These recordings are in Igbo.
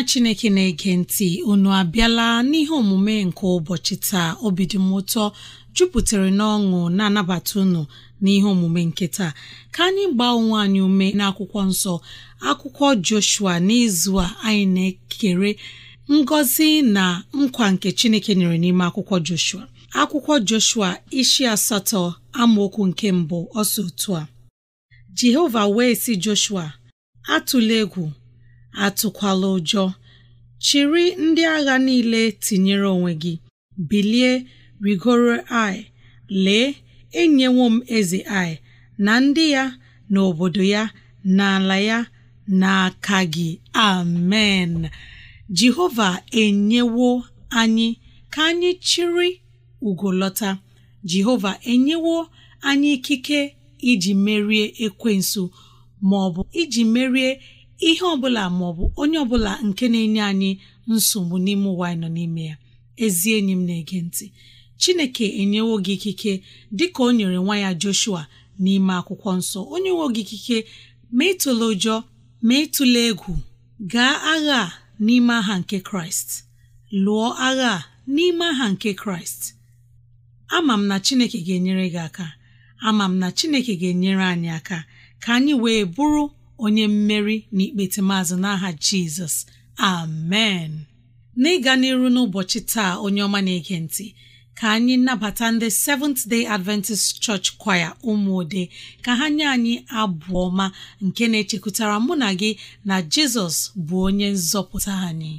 nwa chineke na-ege ntị unu abịala n'ihe omume nke ụbọchị taa obi dị m ụtọ jupụtara n'ọṅụ na-anabata unu n'ihe omume nke taa ka anyị gbaa onwe anyị ume n'akwụkwọ nsọ akwụkwọ Joshua n'izu a anyị na-ekere ngọzi na nkwa nke chineke nyere n'ime akwụkwọ Joshua akwụkwọ Joshua ishi asatọ amaokwu nke mbụ ọsọ otu a Jehova wee si Joshua atụla egwu atụkwala ụjọ chịrị ndị agha niile tinyere onwe gị bilie rigoro ai lee enyewo m eze ai na ndị ya na obodo ya na ala ya n'aka gị amen jehova enyewo anyị ka anyị chịrị ugolọta jehova enyewo anyị ikike iji merie ekwensu ma ọ bụ iji merie ihe ọbụla bụ onye ọbụla nke na-enye anyị nsogbu n'ime ụwa anyị nọ n'ime ya ezi enyi m na-ege ntị chineke enyewo gị ikike dịka o nyere nwa ya joshua n'ime akwụkwọ nsọ onye nwe gị ikike ma ịtụle ụjọ ma ịtụle egwu gaa agha n'ime aha nke kraịst lụọ agha n'ime aha nke kraịst ama m na chineke ga-enyere gị aka ama m na chineke ga-enyere anyị aka ka anyị wee bụrụ onye mmeri na ikpete maazị n'aha jizọs amen n'ịga n'iru n'ụbọchị taa onye ọma na-ege ntị ka anyị nabata ndị Seventh Day Adventist Church Choir ụmụode ka ha nye anyị abụ ọma nke na-echekwutara mụ na gị na jizọs bụ onye nzọpụta anyị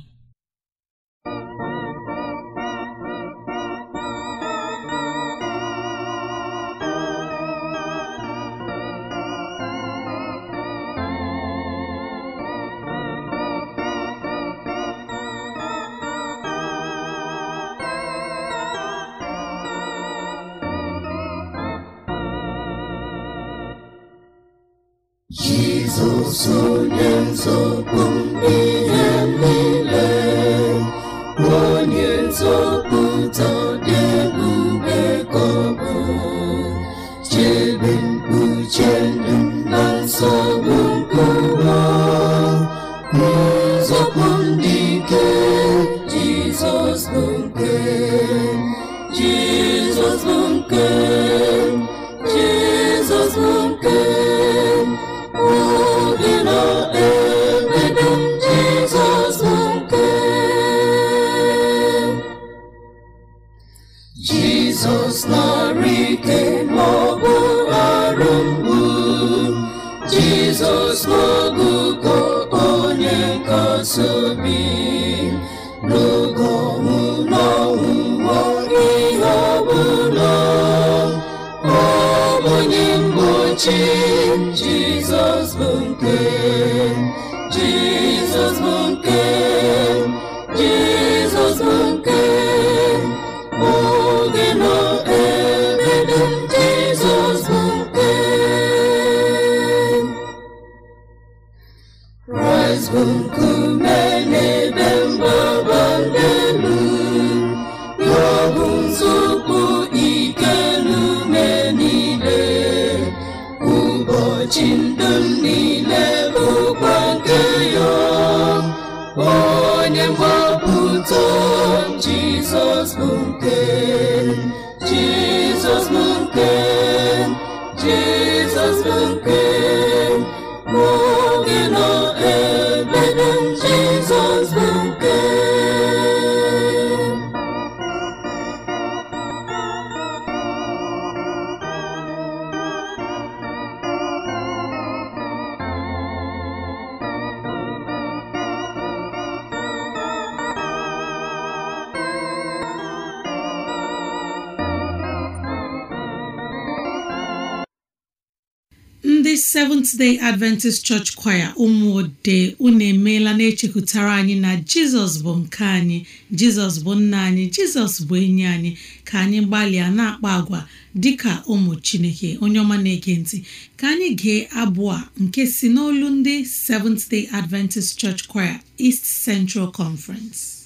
ndị Seventh Day Adventist Church Choir ụmụode unu emeela na-echekwutara anyị na jizọs bụ nke anyị jizọs bụ nna anyị jizọs bụ enyi anyị ka anyị gbalịa na-akpa agwa dịka ụmụ chineke onye ọma na-ege ntị ka anyị gee abụ a nke si n'olu ndị Seventh Day Adventist Church Choir East Central Conference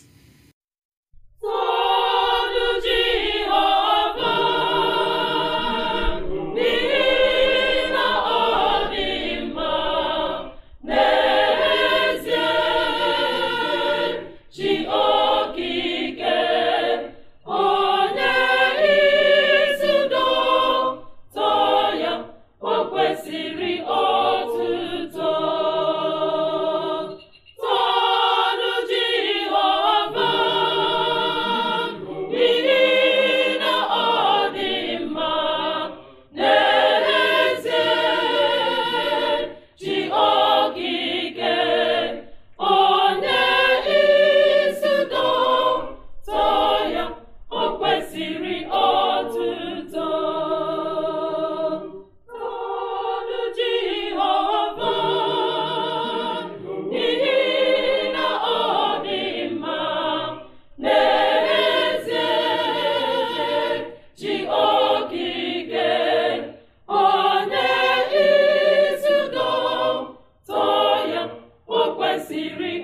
kwesịrị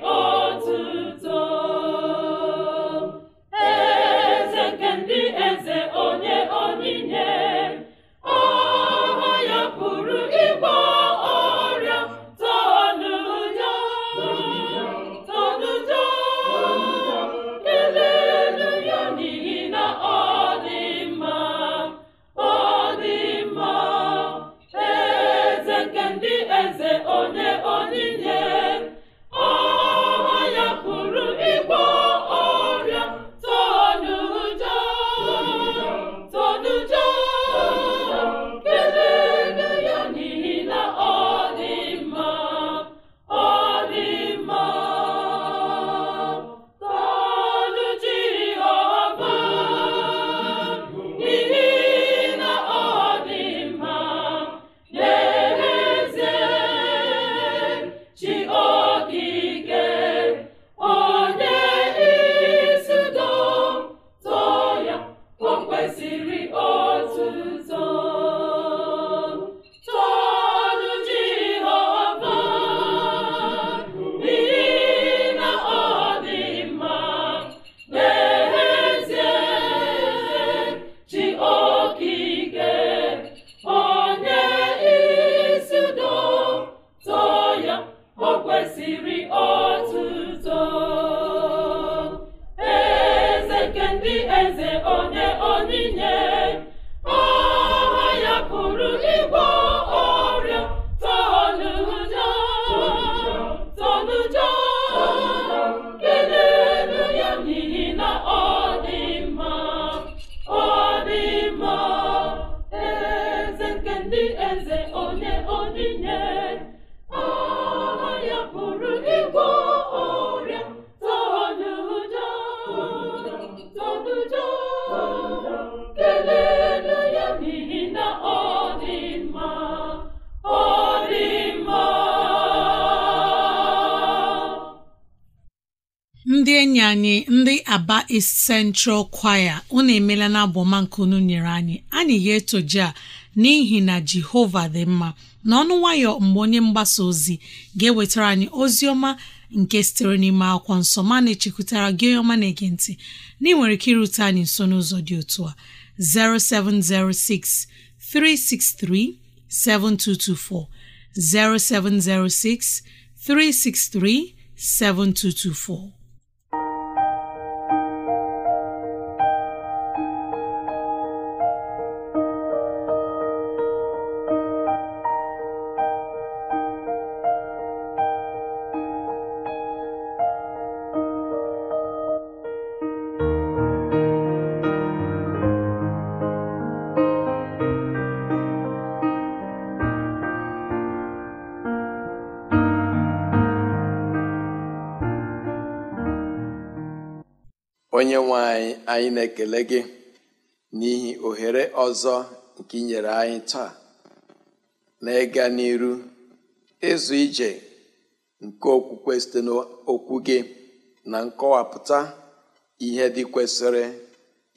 Aba East Central Choir unu emela na abụọma nke unu nyere anyị anyị ga-etoje a n'ihi na Jehova dị mma ọnụ nwayọ mgbe onye mgbasa ozi ga-ewetara anyị ozi ọma nke sitere n'ime akwụkwọ nsọ ma na-echekwutara gị onye ọma na-ege ntị na ị nwere ike irute anyị nso n'ụzọ dị otu a 0706 363 7224 0706 363 7224 anyị na-ekele gị n'ihi ohere ọzọ nke inyere anyị taa na ịga n'iru ịzụ ije nke okwukwe site n'okwu gị na nkọwapụta ihe dị kwesịrị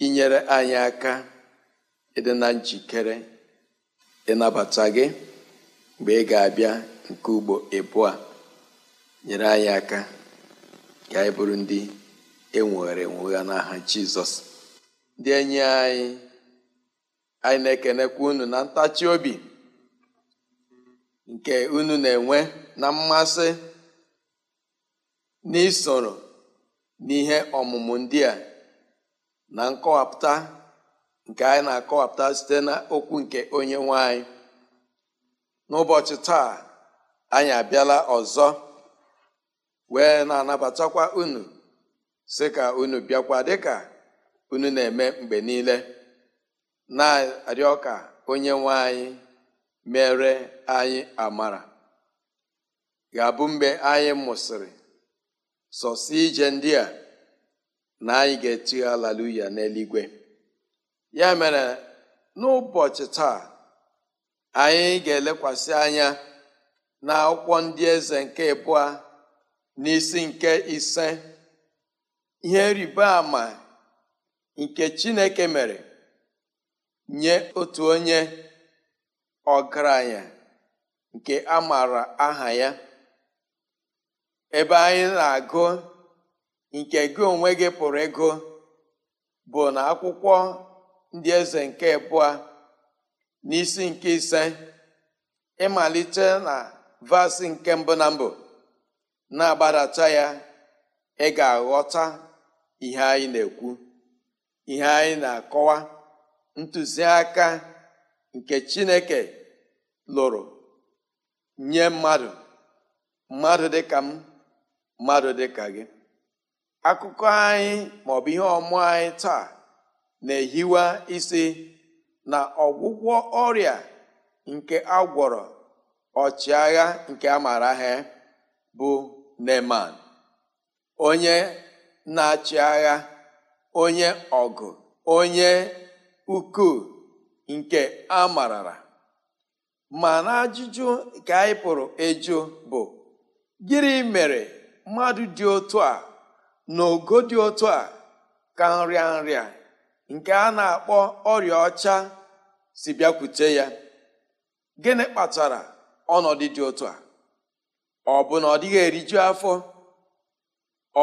inyere anyị aka ịdị na njikere ịnabata gị mgbe ị ga-abịa nke ugbo ịbụọ nyere anyị aka ka anyị bụrụ ndị enwere enwe ya n'aha jizọs ndị enyi anyị anyị na-ekenekwa unu na ntachi obi nke unu na-enwe na mmasị n'isoro n'ihe ọmụmụ ndị a na nkọwapụta nke anyị na-akọwapụta site n'okwu nke onye nwanyị n'ụbọchị taa anyị abịala ọzọ wee na-anabatakwa unu si ka unu bịakwa dịka unu na-eme mgbe niile na-arịọ ka onye nwe anyị mere anyị amara ga-abụ mgbe anyị mụsịrị sọsọ ije ndị a na anyị ga-eti alaluya n'eluigwe ya mere n'ụbọchị taa anyị ga-elekwasị anya na akwụkwọ ndị eze nke na n'isi nke ise ihe rịba ama nke Chineke mere nye otu onye ọgaranya nke a aha ya ebe anyị na-agụ nke gị onwe gị pụrụ ego bụ na akwụkwọ ndị eze nke abụọ n'isi nke ise ịmalite na vasi nke mbụ na mbụ na-agbadata ya ị ga-aghọta ihe anyị na-ekwu ihe anyị na-akọwa ntụziaka nke Chineke lụrụ nye mmadụ mmadụ dị ka m mmadụ dị ka gị akụkọ anyị maọbụ ihe ọmụ anyị taa na-ehiwa isi na ọgwụgwọ ọrịa nke agwọrọ ọchịagha nke a mara ha bụ Neman onye na-achị agha onye ọgụ onye ukwu nke a marara ma na ajụjụ ka anyị pụrụ ịjụ bụ gịnị mere mmadụ dị otu a na ogo dị otu a ka nrịa nrịa nke a na-akpọ ọrịa ọcha si bịakwute ya gịnị kpatara ọnọdụ dị otu a ọ bụ na ọ dịghị eriju afọ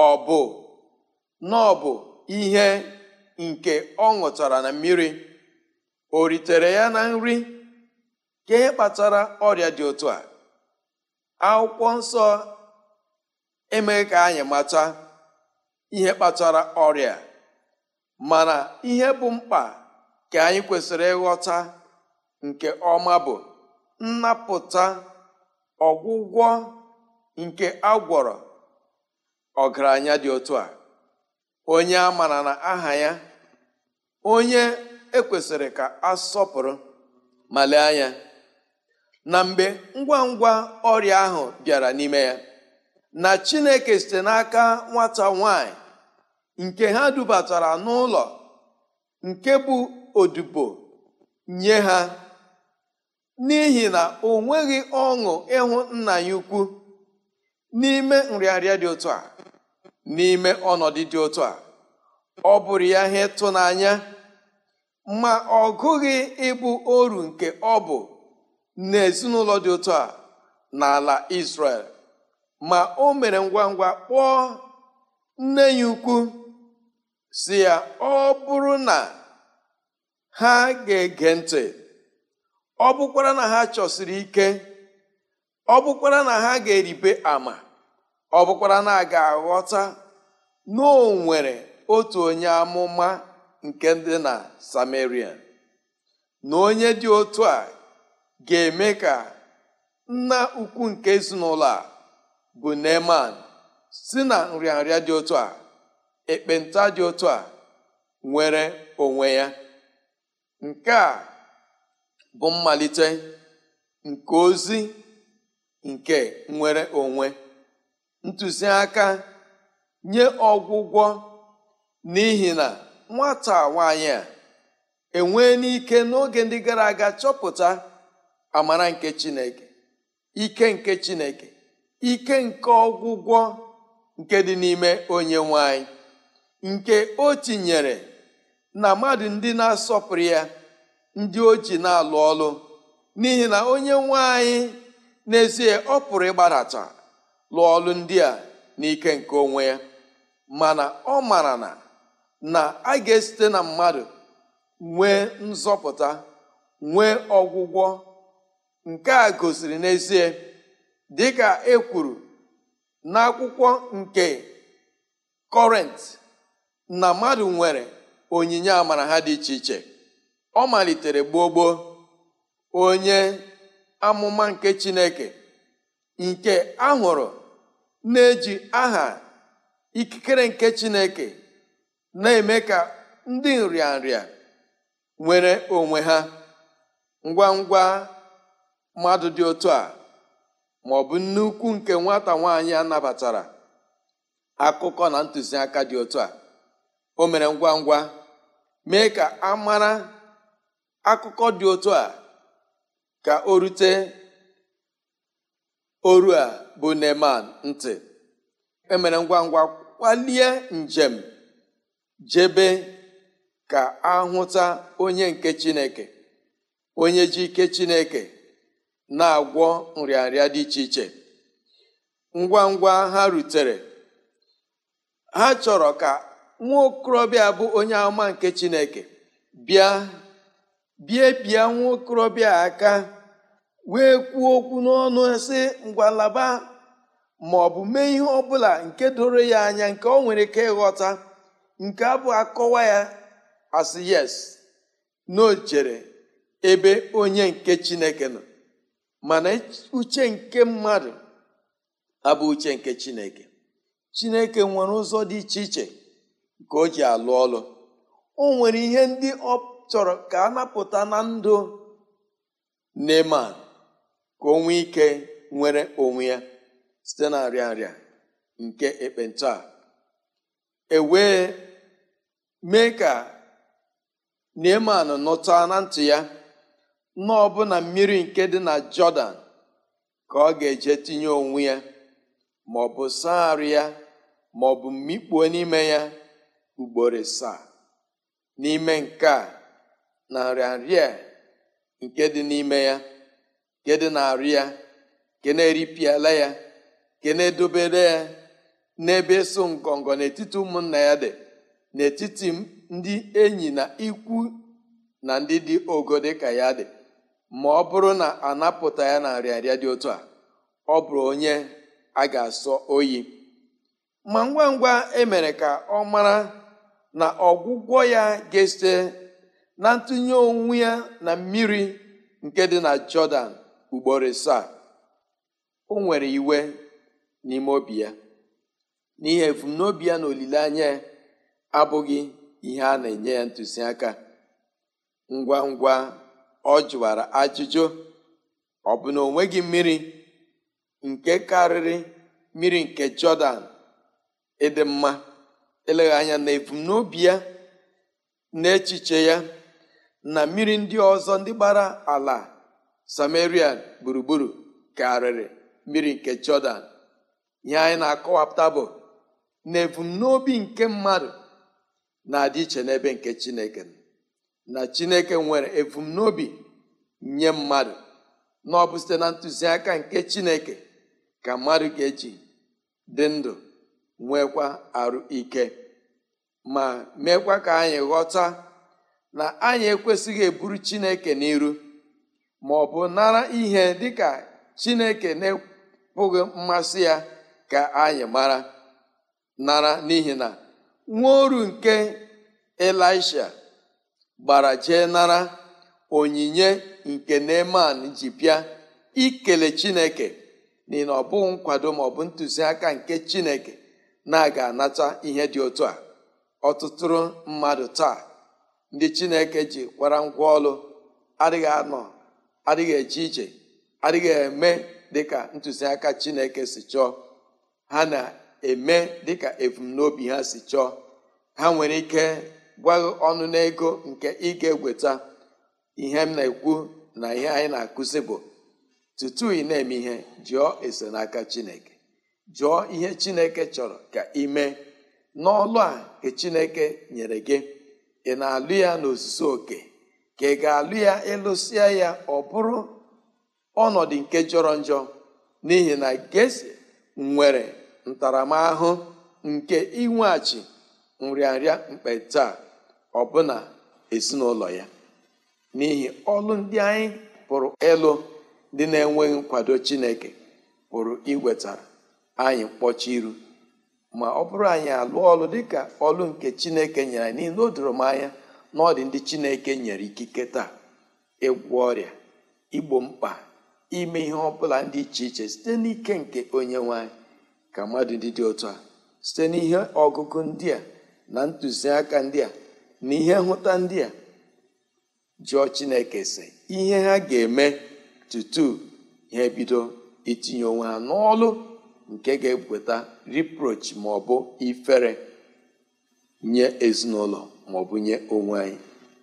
ọ bụ na bụ ihe nke ọ ṅụtara na mmiri o ritere ya na nri ka ihe kpatara ọrịa dị otu a akwụkwọ nsọ emeghị ka anyị mata ihe kpatara ọrịa mana ihe bụ mkpa ka anyị kwesịrị ịghọta nke ọma bụ nnapụta ọgwụgwọ nke agwọrọ ọgaranya dị otu a onye a mara na aha ya onye ekwesịrị ka a sọpụrụ ma anya na mgbe ngwa ngwa ọrịa ahụ bịara n'ime ya na Chineke site n'aka nwata nwanyị nke ha dubatara n'ụlọ nke bụ odibo nye ha n'ihi na o nweghị ọṅụ ịhụ nna ya ukwu n'ime nrịanrịa dị otu a n'ime ọnọdụ dị otu a ọ bụrụ ya ihe ịtụnanya ma ọ gụghị ịbụ oru nke ọ bụ n'ezinụlọ dị otu a n'ala Israel ma o mere ngwa ngwa kpọọ nne ya ukwu si ya ọ bụrụ na ha ga-ege ntị ọ bụkwara na ha chọsiri ike ọ bụkwara na ha ga-eribe ama ọ bụkwara na a ga-aghọta noo nwere otu onye amụma nke dị na Samaria na onye dị otu a ga-eme ka nna ukwu nke ezinụlọ a bụ Neman si na nrịanrịa dị otu a ekpenta dị otu a nwere onwe ya nke a bụ mmalite nke ozi nke nwere onwe ntụziaka nye ọgwụgwọ n'ihi na nwata nwanyị a enwee n'ike n'oge ndị gara aga chọpụta amara nke chineke ike nke chineke ike nke ọgwụgwọ nke dị n'ime onye nwanyị nke o tinyere na mmadụ ndị na-asọpụrụ ya ndị o ji na-alụ ọlụ n'ihi na onye nwanyị n'ezie ọ pụrụ ịgbadata lụọ ọlụ ndị a n'ike nke onwe ya mana ọ mara na na a ga-esite na mmadụ nwee nzọpụta nwee ọgwụgwọ nke a gosiri n'ezie dịka e kwuru n'akwụkwọ nke kọrent na mmadụ nwere onyinye amara ha dị iche iche ọ malitere gbogbo onye amụma nke chineke nke ahụrụ na-eji aha ikikere nke chineke na-eme ka ndị nrịanrịa nwere onwe ha ngwa ngwa mmadụ dị otu a ma ọ bụ nnukwu nke nwata nwaanyị anabatara akụkọ na ntụziaka dị otu a o mere ngwa ngwa mee ka a mara akụkọ dị otu a ka o rute oru a bụ Neman ntị emere ngwa ngwa kwalie njem jebe ka ahụta onye nke chineke onye ji ike chineke na-agwọ nrịanrịa dị iche iche ngwa ngwa ha rutere ha chọrọ ka nwa okorobịa bụ onye ama nke chineke bịa bie bịa nwa okorobịa aka wee kwuo okwu n'ọnụ sị ngwa ma ọ bụ mee ihe ọ bụla nke doro ya anya nke ọ nwere ike ịghọta nke abụ akọwa ya asị yes na ebe onye nke chineke nọ mana uche nke mmadụ abụ uche nke chineke chineke nwere ụzọ dị iche iche nke o ji alụ ọlụ o nwere ihe ndị ọ chọrọ ka a napụta na ndụ Neman ka o ike nwere onwe ya site na nrịa nrịa nke ekpenta ewee mee ka Neeman nụta na ntị ya na mmiri nke dị na Jọdan ka ọ ga-eje tinye onwe ya ma ọ bụ saa ya ma ọ bụ mmikpuo n'ime ya ugboro sa n'ime nke a na a nke dị n'ime ya nke dị na arụ ya nke na-eripịala ya nke na-edobere ya n'ebe so ngọngọ n'etiti ụmụnna ya dị n'etiti ndị enyi na ikwu na ndị dị ogo dị ka ya dị ma ọ bụrụ na anapụta ya na nrịarịa dị otu a ọ bụrụ onye a ga-asọ oyi ma ngwa ngwa emere ka ọ mara na ọgwụgwọ ya ga-esite na ntụnye onwe ya na mmiri nke dị na Jọdan ugboro asaa o nwere iwe n'ime obi ya n'ihi ebumnobi ya na olileanya ya abụghị ihe a na-enye ya ntụziaka ngwa ngwa ọ jụwara ajụjụ ọ bụ na o mmiri nke karịrị mmiri nke jọdan ịdị mma eleghị anya na ebumnobi ya na echiche ya na mmiri ndị ọzọ ndị gbara ala samaria gburugburu karịrị mmiri nke jọdan ihe anyị na-akọwapụta bụ na ebumnobi nke mmadụ na-adị iche n'ebe nke chineke na chineke nwere ebumnobi nye mmadụ na ọ bụ site na ntụziaka nke chineke ka mmadụ ga-eji dị ndụ nwekwa arụ ike ma meekwa ka anyị ghọta na anyị ekwesịghị eburu chineke n'iru ma ọ bụ nara ihe dịka chineke na-ekwughị mmasị ya ka anyị mara nara n'ihi na nwa oru nke elisha gbara jee nara onyinye nke neman ji bịa ikele chineke n'ihi na ọ bụghị nkwado ma ọ bụ ntụziaka nke chineke na-aga anata ihe dị otu a ọtụtụrụ mmadụ taa ndị chineke ji kwara ngwa ọlụ adịghị anọ adịghị eje ije adịghị eme dịka ntụziaka chineke si chọọ ha na-eme dịka ebumnobi ha si chọọ ha nwere ike gwaghị ọnụ n'ego nke ị ga egweta ihe m na-ekwu na ihe anyị na-akụzi bụ tutu ị na-eme ihe jụọ ese n'aka chineke jụọ ihe chineke chọrọ ka ị mee n'ọlụ a ka chineke nyere gị ị na-alụ ya n'ozuzu oke ka ị ga-alụ ya ịlụsịa ya ọ bụrụ ọnọdụ nke jọrọ njọ n'ihi na gesi nwere ntaramahụ nke inweghachi nrịanrịa mkpe taa ọbụna ezinụlọ ya n'ihi ọlụ ndị anyị pụrụ ịlụ ndị na-enweghị nkwado Chineke pụrụ iwetara anyị mkpọchi iru ma ọ bụrụ anyị alụọ ọlụ dịka ọlụ nke Chineke nyere anyị n'ihi na o doro m anya na ndị Chineke nyere ikike taa ịgwọ ọrịa igbo mkpa ime ihe ọ bụla dị iche iche site n'ike nke onye nwanyị. ka mmadụ ndị dị otu a site n'ihe ọgụgụ ndị a na ntụziaka ndị a na ihe nhụta ndị a jụọ chineke si ihe ha ga-eme tutu ha ebido itinye onwe ha n'ọlụ nke ga-eweta reproach ma ọ bụ ifere nye ezinụlọ ma bụ nye onwe anyị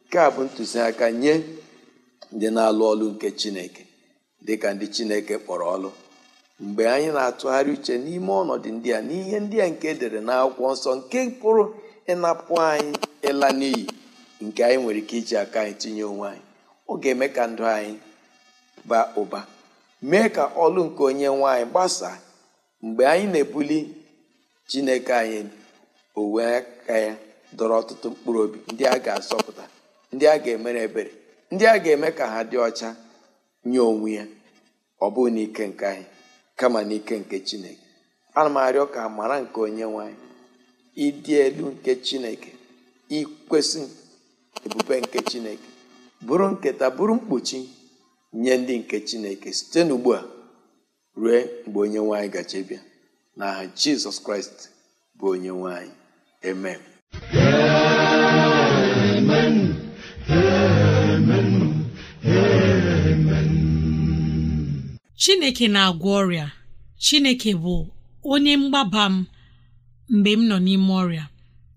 nke a bụ ntụziaka nye ndị na-alụ ọlụ nke chineke dịka ndị chineke kpọrọ ọlụ mgbe anyị na-atụgharị uche n'ime ọnọdụ ndị a n'ihe ndị a nke edere akwụkwọ nsọ nke pụrụ ịnapụ anyị ịla n'iyi nke anyị nwere ike iji aka anyị tinye onwe anyị ọ ga-eme ka ndụ anyị baa ụba mee ka ọlụ nke onye nwanyị gbasaa mgbe anyị na-ebuli chineke anyị o aka ya dọrọ ọtụtụ mkpụrụ obi ndị a ga-asọpụta ndị a ga-emere ebere ndị a ga-eme ka ha dị ọcha nye onwe ya ọ bụghị n'ike nke anyị kama n'ike nke chineke ana m arịọ ka amara nke onye nwanyị ịdị elu nke chineke ikwesị ebube nke chineke bụrụ nketa bụrụ mkpuchi nye ndị nke chineke site n'ugbu a ruo mgbe onye nwanyị gaje na aha jizọs kraịst bụ onye nwanyị amen chineke na-agwọ ọrịa chineke bụ onye mgbaba m mgbe m nọ n'ime ọrịa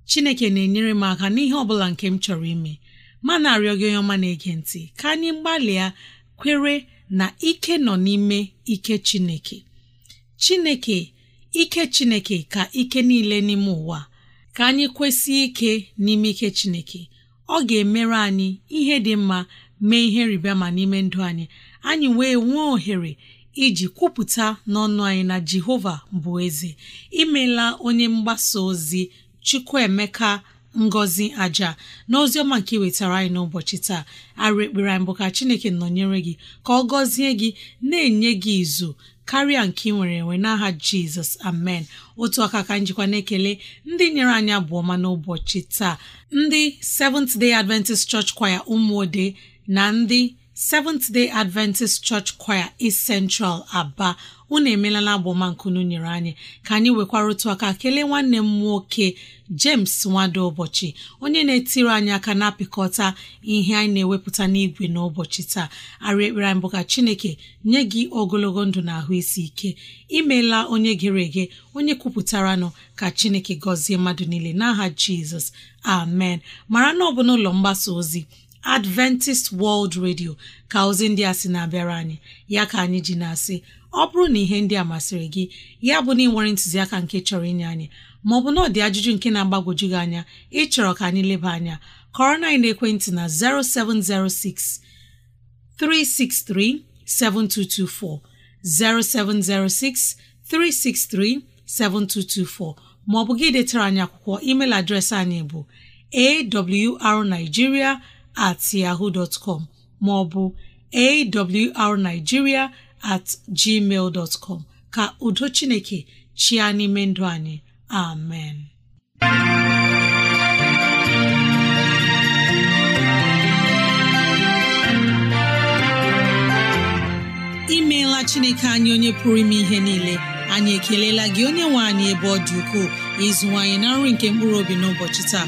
chineke na-enyere m aka n'ihe ọ bụla nke m chọrọ ime ma na-arịọ gị onye ọma na-ege ntị ka anyị gbalịa kwere na ike nọ n'ime ike chineke chineke ike chineke ka ike niile n'ime ụwa ka anyị kwesị ike n'ime ike chineke ọ ga-emere anyị ihe dị mma mee ihe ma n'ime ndụ anyị anyị wee nwee ohere iji kwupụta n'ọnụ anyị na Jehova bụ eze imela onye mgbasa ozi Chukwuemeka Ngozi aja na ozi ọma nke wetara anyị n'ụbọchị taa arụ ekpere anyị bụ ka Chineke nọnyere gị ka ọ gọzie gị na-enye gị izu karịa nke ị nwere enwe n'aha Jizọs amen otu aka ka njikwa na-ekele ndị nyere anyị abụọma n'ụbọchị taa ndị Seventh Day Adventist Church Choir ụmụode na ndị Seventh Day Adventist Church Choir East Central Aba unu emelala agbomankunu nyere anyị ka anyị nwekwara otu aka kelee nwanne m nwoke James Nwado ụbọchị onye na-etiri anyị aka na-apịkọta ihe anyị na-ewepụta n'igwe n'ụbọchị taa arị ekpere anyị bụ ka Chineke nye gị ogologo ndụ na ahụ isi ike imeela onye gere ege onye kwupụtaranụ ka Chineke gọzie mmadụ niile n'aha Jizọs amen mara na ọ bụ n'ụlọ mgbasa ozi adventist world radio ka ozi ndị a sị na-abịara anyị ya ka anyị ji na-asị ọ bụrụ na ihe ndị a masịrị gị ya bụ na ịnwere ntụziaka nke chọrọ inye anyị maọbụ na ọ dị ajụjụ nke na-agbagwoju gị anya ịchọrọ ka anyị leba anya kọrọ na ekwentị na 0706 363 7224 0706 363 7224 maọbụ gị detara anyị akwụkwọ email adreesị anyị bụ awrnigeria at yahoo dot com maọbụ awrnigeria at gmail dot ka udo Chineke chịa n'ime ndụ anyị amen imeela chineke anyị onye pụrụ ime ihe niile anyị ekelela gị onye nwe anyị ebe ọ dị ukwuu ịzụwanyị na nri nke mkpụrụ obi n'ụbọchị taa